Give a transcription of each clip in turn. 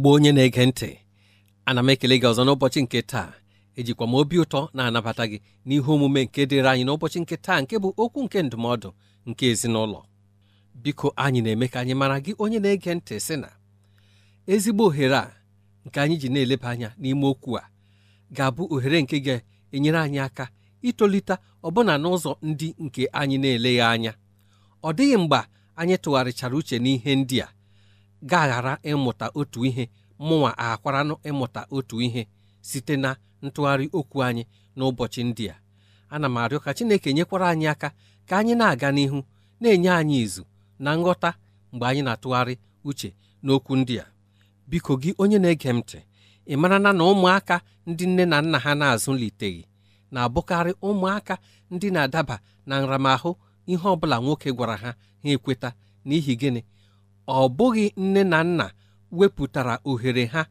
ezigbo onye na-ege ntị ana m ekele gị ọzọ n'ụbọchị nke taa ejikwa m obi ụtọ na-anabata gị n'ihe omume nke dịrị anyị n'ụbọchị nke taa nke bụ okwu nke ndụmọdụ nke ezinụlọ biko anyị na-eme ka anyị mara gị onye na-ege ntị sị na ezigbo ohere a nke anyị ji na-eleba anya n'ime okwu a ga-abụ ohere nke ga-enyere anyị aka itolite ọbụna n'ụzọ ndị nke anyị na-eleghị anya ọ dịghị mgbe anyị tụgharịchara uche n'ihe ndị a gaghara ịmụta otu ihe mụnwa akwaranụ ịmụta otu ihe site na ntụgharị okwu anyị n'ụbọchị ndị a ana m arịọ ka Chineke nyekwara anyị aka ka anyị na-aga n'ihu na-enye anyị izu na nghọta mgbe anyị na-atụgharị uche n'okwu ndị a biko gị onye na-ege m ntị ị mara na na ụmụaka ndị nne na nna ha na-azụliteghị na-abụkarị ụmụaka ndị na-adaba na nramahụ ihe ọ bụla nwoke gwara ha ha ekweta n'ihi gịnị ọ bụghị nne na nna wepụtara ohere ha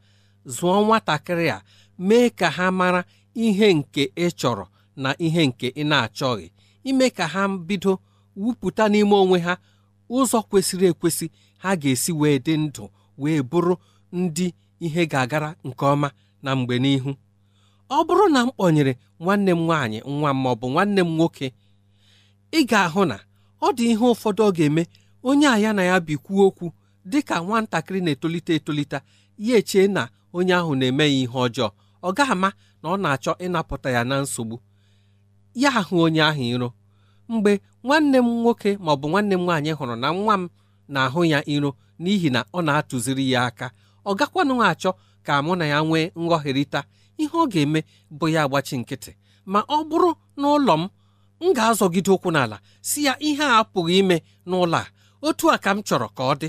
zụọ nwatakịrị a mee ka ha mara ihe nke ị chọrọ na ihe nke ị na-achọghị ime ka ha bido wupụta n'ime onwe ha ụzọ kwesịrị ekwesị ha ga-esi wee dị ndụ wee bụrụ ndị ihe ga-agara nke ọma na mgbe n'ihu ọ bụrụ na m kpọnyere nwanne m nwaanyị nwa m bụ nwanne m nwoke ị ga-ahụ na ọ dị ihe ụfọdụ ọ ga-eme onye a ya na ya bikwuo okwu dị ka nwatakịrị na-etolite etolite ya echee na onye ahụ na-eme ya ihe ọjọọ ọ gaghị ama na ọ na-achọ ịnapụta ya na nsogbu ya ahụ onye ahụ iro mgbe nwanne m nwoke ma ọ bụ nwanne m nwaanyị hụrụ na nwa m na-ahụ ya iro n'ihi na ọ na-atụziri ya aka ọ gakwanụ achọ ka mụ na ya nwee nghọherịta ihe ọ ga-eme bụ ya agbachi nkịtị ma ọ bụrụ n'ụlọ m m ga-azọgide ụkwụ n'ala si ya ihe a apụghị ime n'ụlọ a otu a ka m chọrọ ka ọ dị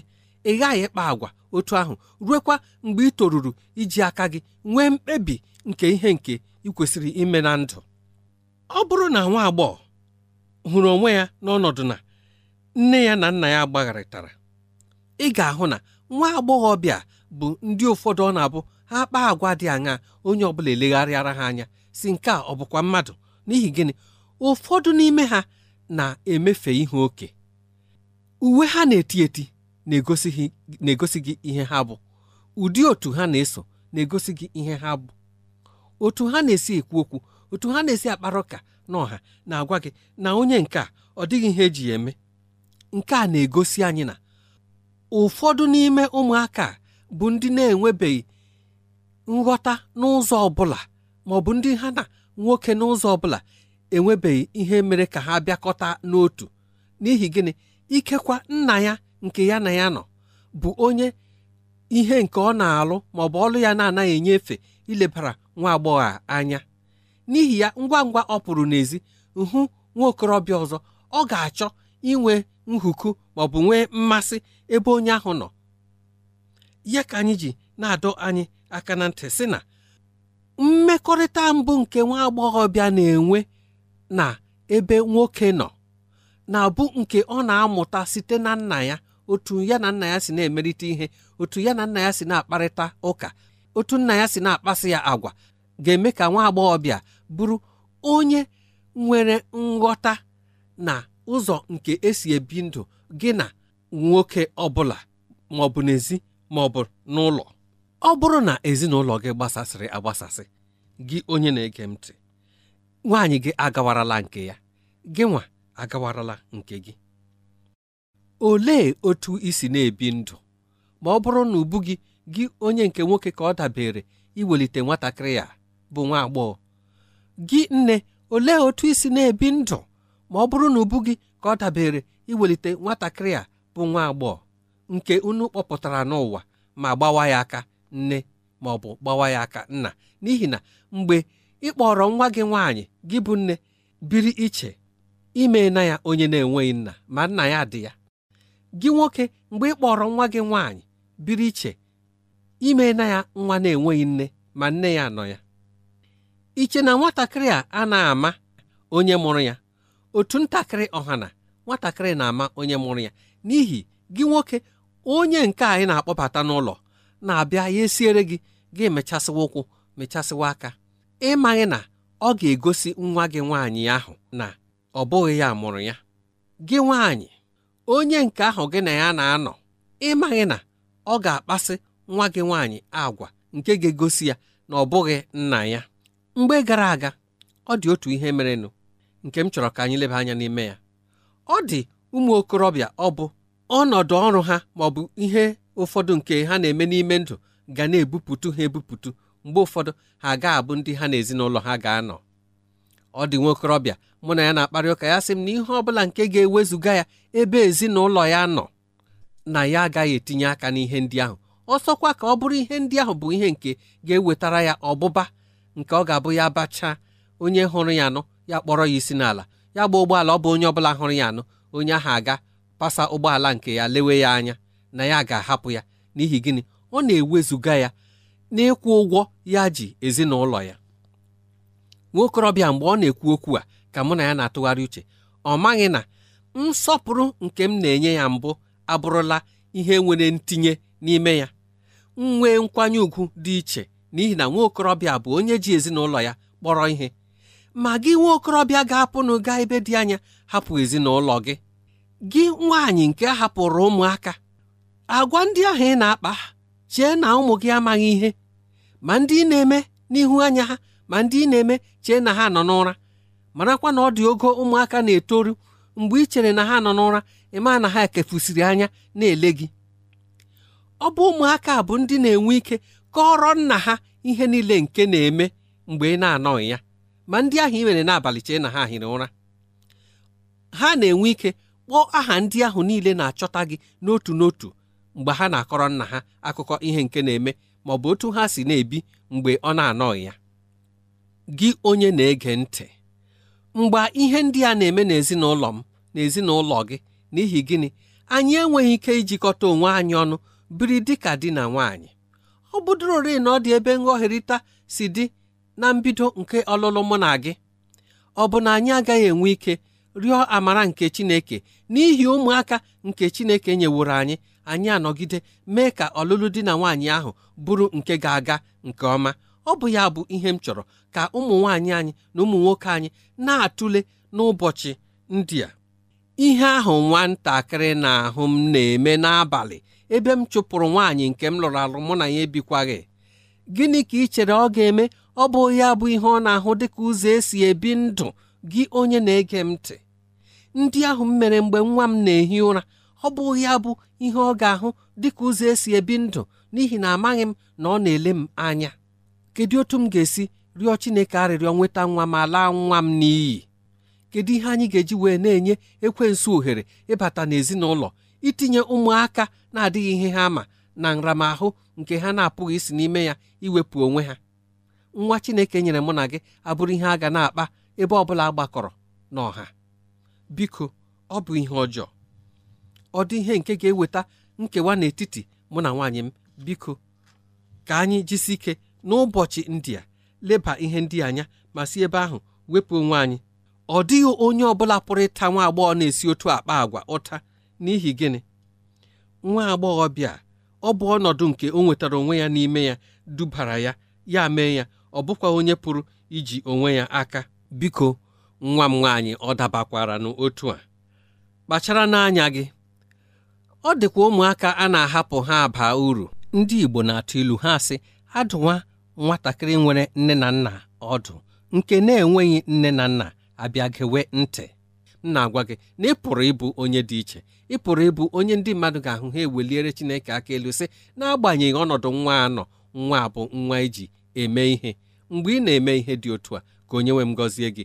ị ghaghị ịkpa agwa otu ahụ ruekwa mgbe ị toruru iji aka gị nwee mkpebi nke ihe nke ị kwesịrị ime na ndụ ọ bụrụ na nwa agbọghọ hụrụ onwe ya n'ọnọdụ na nne ya na nna ya gbagharịtara ị ga-ahụ na nwa agbọghọ bịa bụ ndị ụfọdụ ọ na-abụ ha kpaa agwa dị aṅa onye ọ bụla elegharịara ha anya si nke a ọ bụkwa mmadụ n'ihi gịnị ụfọdụ n'ime ha na-emefe ihe oke uwe ha na-eti eti na-egosi gị ihe ha bụ ụdị otu ha na-eso na-egosi gị ihe ha bụ otu ha na-esi ekwu okwu otu ha na-esi akpara ụka na na-agwa gị na onye nke a ọ dịghị ihe eji ya eme nke a na-egosi anyị na ụfọdụ n'ime ụmụaka bụ ndị na-enwebeghị nghọta n'ụzọ ọbụla ma maọbụ ndị ha na nwoke n'ụzọ ọ bụla enwebeghị ihe mere ka ha bịakọta n'otu n'ihi gịnị ikekwa nna ya nke ya na ya nọ bụ onye ihe nke ọ na-alụ ma ọ bụ ọlụ ya na-anaghị enyefe ilebara nwa agbọghọ anya n'ihi ya ngwa ngwa ọ pụrụ n'ezi hụ nwa okorobịa ọzọ ọ ga-achọ inwe nhuku ma ọ bụ nwee mmasị ebe onye ahụ nọ ya ka anyị ji na-adọ anyị aka na ntị sị na mmekọrịta mbụ nke nwa agbọghọbịa na-enwe na ebe nwoke nọ na-abụ nke ọ na-amụta site na nna ya otu ya na nna ya si na-emerite ihe otu ya na nna ya si na-akparịta ụka otu nna ya si na-akpasị ya agwa ga-eme ka nwa agbọghọbịa bụrụ onye nwere nghọta na ụzọ nke esi ebi ndụ gị na nwoke ọbụla ma ọ bụ n'ezi ma ọ bụ n'ụlọ ọ bụrụ na ezinụlọ gị gbasasịrị agbasasị gị onye na-ege ntị nwaanyị gị agawarala nke ya gị nwa agawarala nke gị olee otu isi na-ebi ndụ ma ọ bụrụ na ubu gị gị onye nke nwoke ka ọ dabere iwelite nwatakịrị ya bụ nwa agbọghọ gị nne olee otu isi na-ebi ndụ ma ọ bụrụ na ubu gị ka ọ dabere iwelite nwatakịrị a bụ nwa agbọghọ nke unu kpọpụtara n'ụwa ma gbawa ya aka nne ma ọ bụ gbawa ya aka nna n'ihi na mgbe ị nwa gị nwaanyị gị bụ nne biri iche ime na ya onye na-enweghị nna ma nna ya dị ya gị nwoke mgbe ị kpọrọ nwa gị nwaanyị biri iche ime na ya nwa na-enweghị nne ma nne ya nọ ya iche na nwatakịrị a a na-ama onye mụrụ ya otu ntakịrị ọhana nwatakịrị na-ama onye mụrụ ya n'ihi gị nwoke onye nke anyị na-akpọbata n'ụlọ na-abịa ya esiere gị gị mechasịwa ụkwụ mechasịwa aka ịmaghị na ọ ga-egosi nwa gị nwaanyị ahụ na ọ bụghị ya mụrụ ya gị nwaanyị onye nke ahụ gị na ya na-anọ ịmaghị na ọ ga-akpasị nwa gị nwaanyị agwa nke ga-egosi ya na ọ bụghị nna ya mgbe gara aga ọ dị otu ihe merenụ nke m chọrọ ka anyị leba anya n'ime ya ọ dị ụmụ okorobịa ọ bụ ọnọdụ ọrụ ha ma ọ bụ ihe ụfọdụ nke ha na-eme n'ime ndụ ga na-ebupụtu ha ebupụtu mgbe ụfọdụ ha ga-abụ ndị ha na ezinụlọ ha ga-anọ ọ dị nwokorobịa mụ na ya na-akparị ụka ya sị m na ihe ọ bụla nke ga-ewezuga ya ebe ezinụlọ ya nọ na ya agaghị etinye aka n'ihe ndị ahụ ọsọkwa ka ọ bụrụ ihe ndị ahụ bụ ihe nke ga-ewetara ya ọbụba nke ọ ga-abụ ya bachaa onye hụrụ ya anọ ya kpọrọ ya isi n'ala ya gba ụgbọala ọ bụ onye ọbụla hụrụ ya anọ onye ahụ aga pasa ụgbọala nke ya lewe ya anya na ya ga-ahapụ ya n'ihi gịnị ọ na-ewezuga ya n'ịkwụ ụgwọ ya ji ezinụlọ ya okorobịa mgbe ọ na-ekwu okwu a ka mụ na ya na-atụgharị uche ọ maghị na nsọpụrụ nke m na-enye ya mbụ abụrụla ihe nwere ntinye n'ime ya nwee nkwanye ùgwù dị iche n'ihi na okorobịa bụ onye ji ezinụlọ ya kpọrọ ihe ma gị okorobịa ga-apụnụ gaa ebe dị anya hapụ ezinụlọ gị gị nwaanyị nke hapụrụ ụmụaka agwa ndị ahụ ị na-akpa chee na ụmụ gị amaghị ihe ma ndị ị na-eme n'ihu anya ha ma ndị ị na-eme chee na ha nọ n'ụra marakwa na ọ dị ogo ụmụaka na-etoru mgbe ị chere na ha nọ n'ụra ịma na ha ekefusiri anya na-ele gị ọ bụ ụmụaka bụ ndị na-enwe ike kọrọ nna ha ihe niile nke na-eme mgbe ị na-anọghị ya ma ndị ahụ ị mere n'abalị chee na ha hiri ụra ha na-enwe ike kpọọ aha ndị ahụ niile na-achọta gị n'otu n'otu mgbe ha na-akọrọ nna ha akụkọ ihe nke na-eme ma ọ bụ otu ha si na-ebi mgbe ọ na-anọghị ya gị onye na-ege ntị mgbe ihe ndị a na-eme n'ezinụlọ m na ezinụlọ gị n'ihi gịnị anyị enweghị ike ijikọta onwe anyị ọnụ biri dịka di na nwaanyị ọ bụdụrorị na ọ dị ebe nghọherịta si dị na mbido nke ọlụlụ mụ na gị ọ bụ na anyị agaghị enwe ike rịọ amara nke Chineke n'ihi ụmụaka nke Chineke nyeworo anyị anyị anọgide mee ka ọlụlụ di na nwaanyị ahụ bụrụ nke ga-aga nke ọma ọ bụ ya bụ ihe m chọrọ ka ụmụ nwaanyị anyị na ụmụ nwoke anyị na-atụle n'ụbọchị ndị a ihe ahụ nwatakịrị na-ahụ m na-eme n'abalị ebe m chụpụrụ nwaanyị nke m lụrụ alụ mụ na ya ebikwaghị gịnị ka ị chere ọ ga-eme ọ bụ ya bụ ihe ọ na-ahụ dịka ụzọ esi ebi ndụ gị onye na-ege m ntị ndị ahụ m mere mgbe nwa m na-ehi ụra ọ bụ ya bụ ihe ọ ga-ahụ dịka ụzọ esi ebi ndụ n'ihi na amaghị m na ọ na-ele m anya kedu otu m ga-esi rịọ Chineke arịrịọ nweta nwa ma laa nwa m n'iyi kedu ihe anyị ga-eji wee na-enye ekwensu ohere ịbata n'ezinụlọ itinye ụmụaka na-adịghị ihe ha ma na nramahụ nke ha na-apụghị isi n'ime ya iwepụ onwe ha nwa Chineke nyere mụ na gị abụrụ ihe a ga na-akpa ebe ọ bụla gbakọrọ n'ọha biko ọ bụ ihe ọjọọ ọ dị ihe nke ga-eweta nkewa n'etiti mụ na nwaanyị m biko ka anyị jisi ike n'ụbọchị ndị a leba ihe ndị anya ma si ebe ahụ wepụ onwe anyị ọ dịghị onye ọbụla pụrụ ịta nwa agbọghọ na-esi otu akpa agwa ụta n'ihi gịnị nwa agbọghọbịa ọ bụ ọnọdụ nke o nwetara onwe ya n'ime ya dubara ya ya mee ya ọ bụkwa onye pụrụ iji onwe ya aka biko nwa m nwaanyị ọ dabakwara n'otu a kpachara n'anya gị ọ dịkwa ụmụaka a na-ahapụ ha baa uru ndị Igbo na-atụ ilu ha sị adụwa nwatakịrị nwere nne na nna ọdụ nke na-enweghị nne na nna abịa gewe ntị m na-agwa gị na ị pụrụ ịbụ onye dị iche ị pụrụ ịbụ onye ndị mmadụ ga-ahụ ha eweliere Chineke aka elu sị n'agbanyeghị ọnọdụ nwa anọ nwa abụ nwa iji e eme ihe mgbe ị na-eme ihe dị otu a ka onye nwe m gọzie gị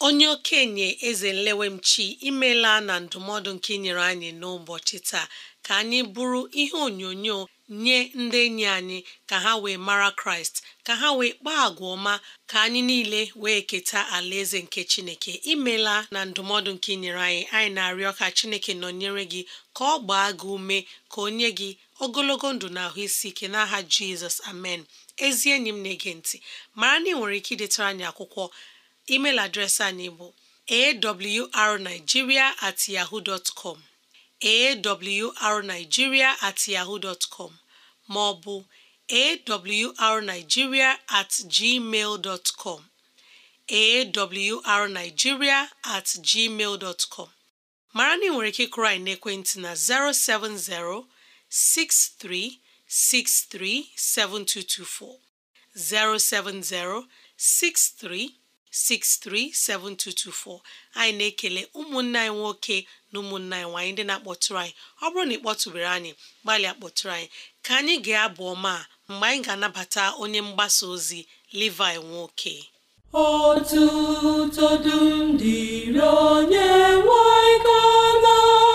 onye okenye eze nlewemchi imela na ndụmọdụ nke inyere anyị n'ụbọchị taa ka anyị bụrụ ihe onyonyo nye ndị enyi anyị ka ha wee mara kraịst ka ha wee kpaa agwa ọma ka anyị niile wee keta alaeze nke chineke imela na ndụmọdụ nke inyere anyị anyị na-arịọ ka chineke nọnyere gị ka ọ gbaa gị ume ka o nye gị ogologo ndụ na ahụ isi ike n'aha jizọs amen ezi enyi m na-ege ntị mara na ị nwere ike idetara anyị akwụkwọ email adreesị anyị bụ awrnigeria at yahoo dot com awrnigeria at yahoo dot com ma ọ bụ awrnigeria at gmail dot com awrnigeria at gmail dot mara na ị nwere ike krai naekwentị na 070 6363 7224 070 63 637224 anyị na-ekele ụmụnne anyị nwoke na ụmụnne anyị nwaanyị ndị na-akpọtụrụ anyị ọ bụrụ na ị kpọtụbere anyị gbalịa kpọtụrụ anyị ka anyị ga-abụ ọma mgbe anyị ga-anabata onye mgbasa ozi Levi nwoke otuto dum dịrị onye nwe anyị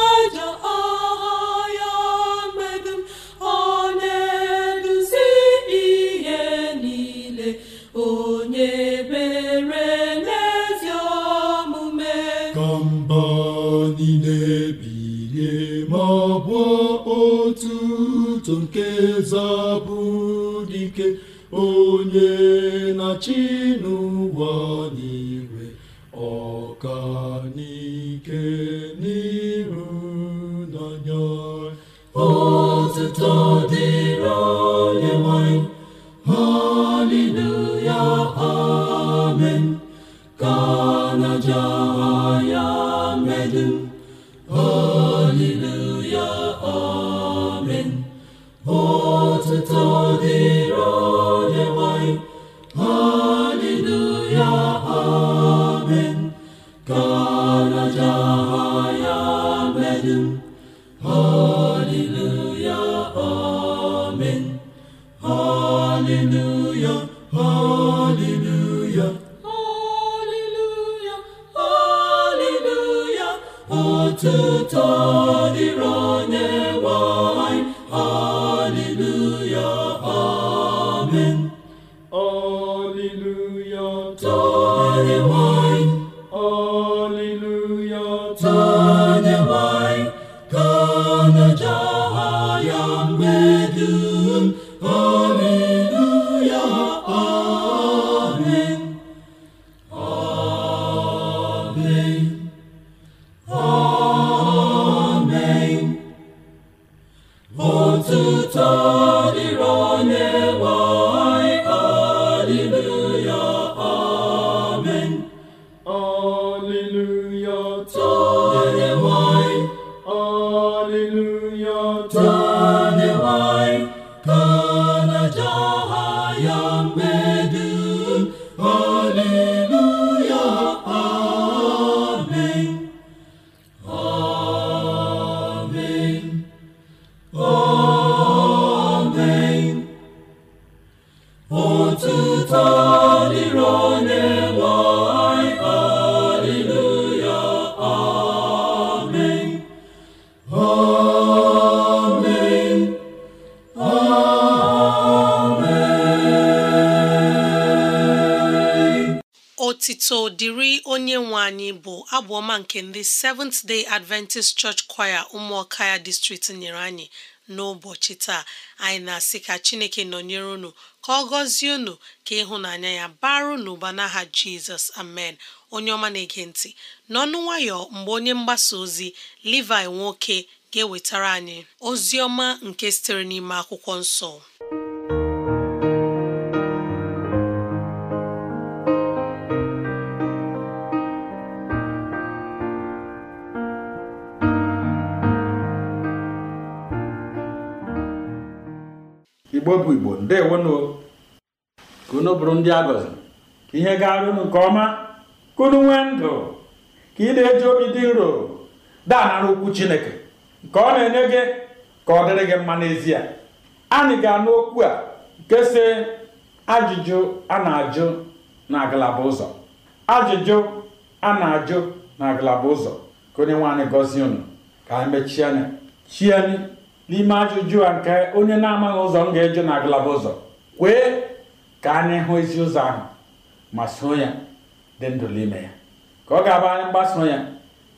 Adam. nke ndị Seventh Day Adventist Church Choir ụmụaka ya district nyere anyị n'ụbọchị taa anyị na-asị ka Chineke nọnyere unu ka ọ gọzie unu ka ịhụnanya ya baru n'ụba n'aha Jizọs amen onye ọma na-ege ntị n'ọnụ nwayọ mgbe onye mgbasa ozi livi nwoke ga-ewetara anyị ozi nke sitere n'ime akwụkwọ nsọ igbo bụ igbo ndewonụ ka unu bụrụ ndị agọziri ka ihe gara unu nke ọma ka unu nwee ndụ ka ị na-eji obi dị nro daanara okwu chineke nke ọ na-enye gị ka ọ dịrị gị mma n'ezie anyị ga-anụ okwu a nke si ajụjụ a na-ajụ na ngalaba ụzọ ajụjụ a na-ajụ na ngalaba ụzọ ka onye nwaanyị gọzie unu ka anyị mechie anya chie anyị n'ime ajụjụ a nke onye na-amaghị ụzọ m ga-eju na ngalaba ụzọ kwee ka anyị hụ ezi ụzọ ahụ ma soo ya dị ndụ n'ime ya ka ọ ga-abụ anyị mgbaso ya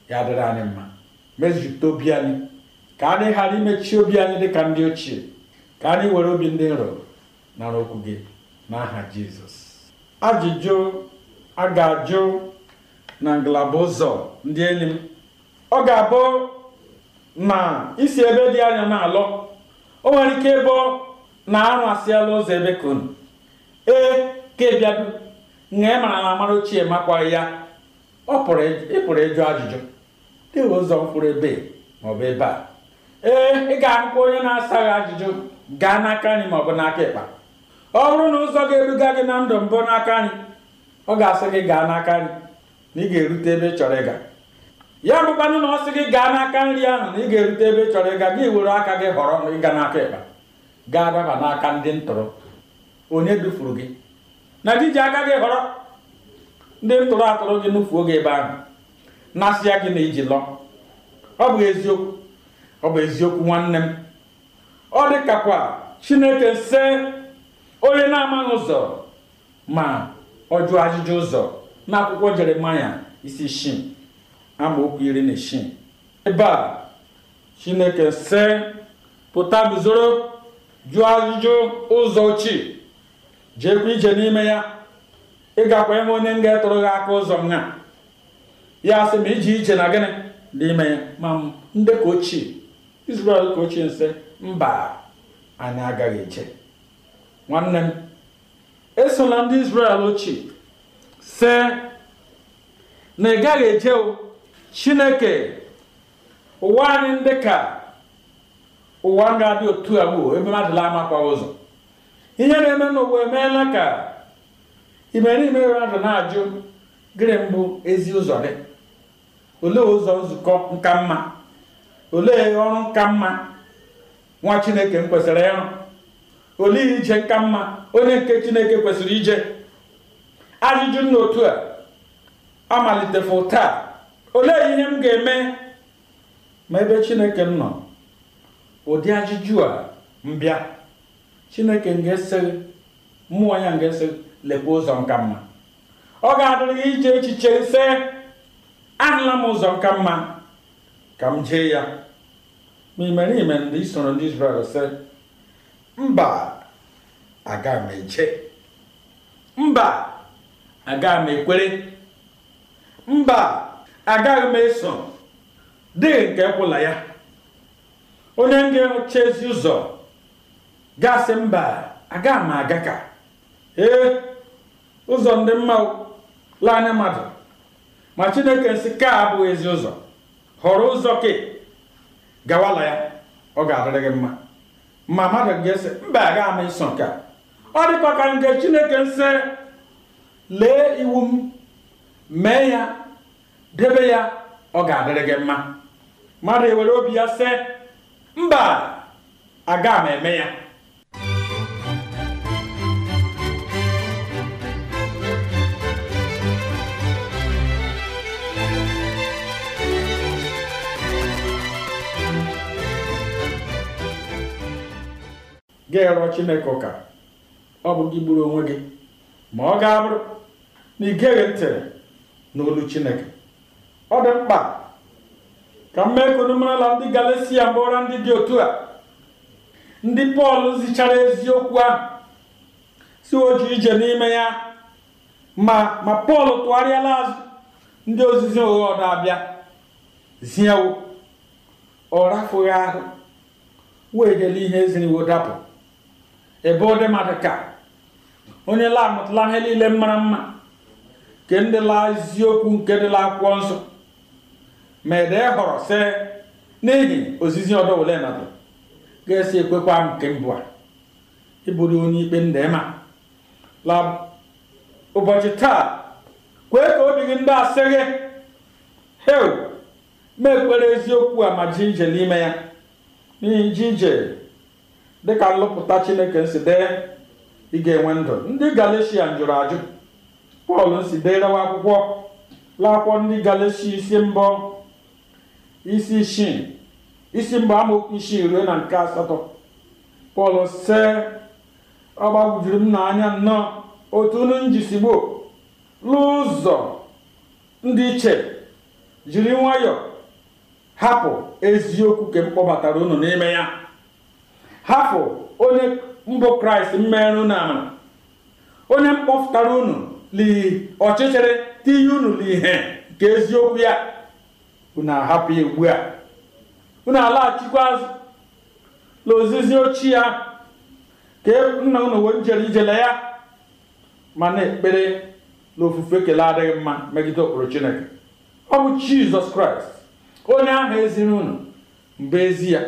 ya dịrị anyị mma mezute obi anyị ka anyị ghara imechi obi anyị dị ka ndị ochie ka anyị were obi ndị nro nara okwu gị n'aha jizọs ajụjụ a ga-ajụ na ngalaba ụzọ ndị enyi m ọ ga-abụ na isi ebe dị anya na-alọ o nwere ike ịbụ na arụ asịala ụzọ ebe e, ka ee ka ịbịadu na mara na amara ochie makwaghị ya ọ pụrụ ịpụrụ ịjụ ajụjụ dịghị ụzọ mkpụrụ ebe ma ọ bụ ebe a ee ị ga-ahụkwa onye na asa gị ajụjụ gaa n'aka anyị ma ọ bụ n'aka ịkpa ọ bụrụ na ụzọ ga-eduga gị na ndụ mbụ n'aka anyị ọ ga-asị gị gaa n'aka anyị na ị ga-erute ebe ị chọrọ ịga ya bụkwanụ na ọ sị gị gaa n'aka nri ahụ na ị ga-erute ebe ị chọrọ ịga gị were aka gị họrọ ịga n'aka ịkpa gaa daba n'aka ndị ntụrụ onye dufuru gị na ji aka gị họrọ ndị ntụrụ atụrụ gị nufuo gị ebe ahụ ya gị na iji lọ ọ bụ eziokwu ọ bụ eziokwu nwanne m ọ dịkakwa chineke se onye na-amaghị ụzọ ma ọ jụọ ajụjụ ụzọ n'akwụkwọ jeremaya isi isii amaokwu iri na isii ebe a chineke sị pụta guzoro jụọ ajụjụ ụzọ ochie jeekwa ije n'ime ya ịgakwa gakwa onye onye nga etụrụ gị aka ụzọ m ya sị ma iji ije na gịnị n'ime ya ma ndị ka ochie Israel ka ochie nsị mba anyị agaghị eje nwanne m esola ndị Israel ochie see na ị gaghị eje o chineke ụwa anyị ndị ka ụwa ga-adị otu a bụ ebe mmadụ ama kwa ụzọ ihe na-eme n'ụwa emeela ka ime imerime mmadụ na-ajụ gịnị mbụ ezi ụzọ dị olee ụzọ nzukọ nka mma olee ọrụ nka mma nwa chineke m kwesịrị ịrụ olee ije nka mma onye nke chineke kwesịrị ije ajụjụ n'otu a amalitefu taa olee ihe m ga-eme ma ebe chineke m nọ ụdị ajụjụ a mbịa chineke m ga mmụọ ya m ga-eseghi lekwa ụzọ nka mma ọ ga-adịrị ihe ije echiche ise ahụla m ụzọ nka mma ka m jee ya ma imere ime ndị isoro ndị Izrel sị mba aga m eche mba aga m ekwere mba agaghị m eso dị nke kwụla ya onye ga-eche ezi ụzọ gasị mba agaghị m aga ka ee ụzọ ndị mma laa mmadụ ma chineke nsị ka abụghị ezi ụzọ họrọ ụzọ ke gawala ya ọ ga-adịrị gị mma ma mmadụ ga-ese mba aga m iso nke ọ dịkwa ka nke chineke nsị lee iwu m mee ya debe ya ọ ga-adịrị gị mma mmadụ ewere obi ya sị mba aga m eme ya ga-erọ chineke ụka ọ bụ gị gburu onwe gị ma ọ ga-abụrụ na ị geghị ntị n'olu chineke ọ dị mkpa ka m mee ka unu marala ndị galesia ndị dị otu a ndị pọl zichara eziokwu ahụ si oju ije n'ime ya ma ma pọl tụgharịala azụ ndị ozizi ụgha ọdọ abịa ziewo ọ rafughị ahụ wee dele ihe eziriwo dapụ ebe ọ dị mmadụ ka onye lamụtala ihe niile mara mma nke ndị la eziokwu nke dịla la akwụkwọ nsọ ma ede họrọ si n'ihi ozizi ọdọwule nọdụ ga-esi ekwekwa nke mbụ a ịbụrụ onye ikpe ndema la ụbọchị taa kwee ka obi gị ndị asị gị ma ekpere eziokwu a ma ji n'ime ya n'ihi ji dịka nlụpụta chineke nsi dee ị ga-enwe ndụ ndị galeshia jụrụ ajụ pọl nsi derewa akwụkwọ laakwọ ndị galecia isi mbụ isi isii isi mgbe ruo na nke asatọ pọl se ọ gbagwujuru m n'anya nnọọ otu unu njisigbo n'ụzọ ndị iche jiri nwayọọ hapụ eziokwu ka m kpọbatara unu n'ime ya hapụ onye mbụ kraịst mmerụ na amara onye mkpọpụtara unu li ọchịchịrị tinye unu n'ihe nke eziokwu ya unu e ahapụ ya ugbu a unu alaghachikwa azụ na ozizi ochie ya ka nna unu wee jere ijele ya ma na-ekpere na ofufe adịghị mma megide ụkpụrụ chineke ọ bụ jizọs kraịst onye ahụ eziri unu mbụ ezi ya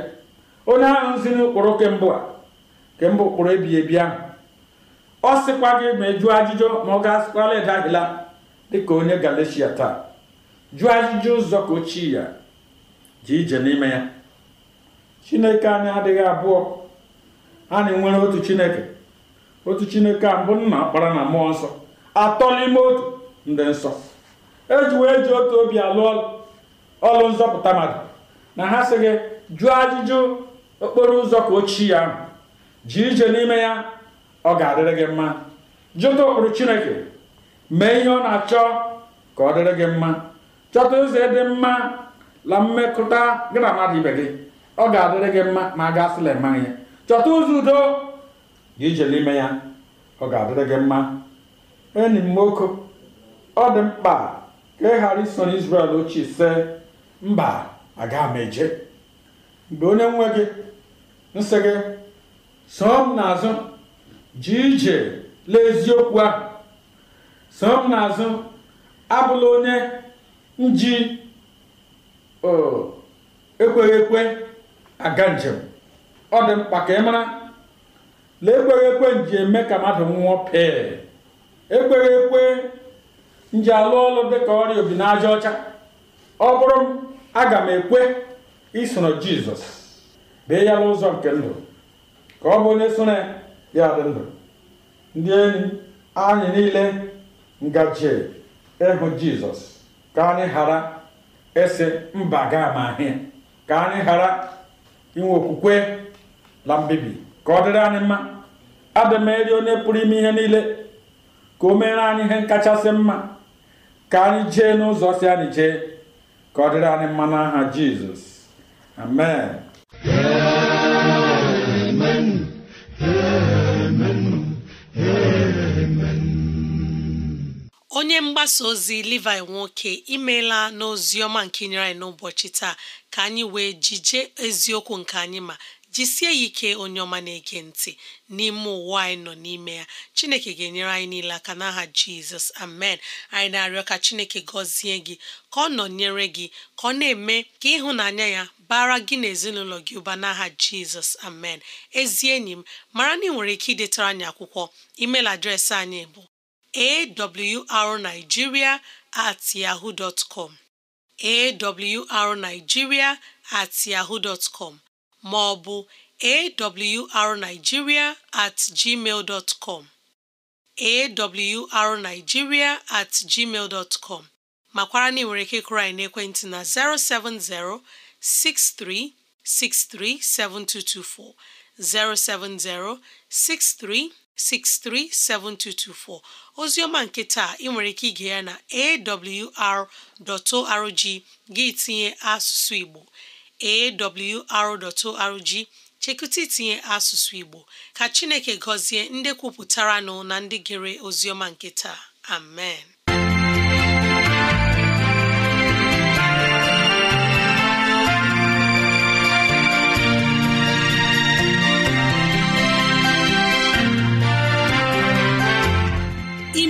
onye ahụ ziri ụkpụrụ kemgbe a kemgbe ụkpụrụ ebighị ebi ahụ ọ sịkwa gị ma ị jụọ ajụjụ ma ọ ga-asịkwala ịdagịla dịka onye galeshia taa jụọ ajụjụ ụzọ ka ochie ya ji ije n'ime ya chineke anyị adịghị abụọ na nwere otu chineke otu chineke a mbụ nna kpara na mmụọ nsọ atọ n'ime otu ndị nsọ eji wee ji otu obi alụ ọlụ nzọpụta mmadụ na ha sị gị jụọ ajụjụ okporo ụzọ ka ochie ya ahụ ji ije n'ime ya ọ ga-adịrị gị mma jụta ụkpụrụ chineke mee ihe ọ na-achọ ka ọ dịrị gị mma chọta ụzọ dị mma la mmekọta gị na mmadụ ibe gị ọ ga-adịrị gị mma ma a ga-asịla mma ya chọta ụzọ udo dị ijele ime ya ọ ga-adịrị gị mma enyi m nwoke ọ dị mkpa ka ị ghara ison isrel ochie sị mba aga m eje mgbe onye nwe gị nsị gị soo n'azụ ji ije lee eziokwu ahụ soo m n'azụ abụla onye nji ekweghị ekwe aga njem ọ dị mkpa ka ị mara na ekweghị ekwe nji eme ka mmadụ nwụọ pee ekweghị ekwe nji alụ ọlụ dịka ọrịa obi n'aja ọcha ọ bụrụ m aga m ekwe isoro jizọs bee ya n'ụzọ nke ndụ ka ọ bụ onye soro ya dị ndụ ndị enyi anyị niile ngaji ịhụ jizọs ka anyị ghara esi mba ga ama ahịa ka anyị ghara inwe okwukwe na mbibi ka ọ dịrị anyị mma adị m eri onye pụrụ ime ihe niile ka o meere anyị ihe kachasị mma ka anyị jee n'ụzọ si anyị jee ka ọ dịrị anyị mma n'aha jizọs amen amen onye mgbasa ozi Levi nwoke imeela n'oziọma ọma nke nyere anyị n'ụbọchị taa ka anyị wee jije eziokwu nke anyị ma jisie ya ike onye ọma na-ege ntị n'ime ụwa anyị nọ n'ime ya chineke ga-enyere anyị niile aka n'aha jizọs amen anyị na-arịọ ka chineke gọzie gị ka ọ nọnyere gị ka ọ na-eme ka ịhụnanya ya bara gị na ezinụlọ gị ụba n'aha jizọs amen ezi enyi m mara na ị nwere ike idetara anyị akwụkwọ emeil adreesị anyị bụ awrnigeria at yahoo dot com awrnigeria at yahoo dot com ma ọ bụ awrnigeria at gmail dot com awrnigeria at gmail dot com makwara na ị ike kụrụ anyị n'ekwentị na 070 6363 7224 070 63 637224 oziọma nke taa ị nwere ike ige ya na awr.org gị tinye asụsụ Igbo awr.org chekụta itinye asụsụ Igbo ka Chineke gọzie ndị kwupụtaranụ na ndị gere oziọma nke taa amen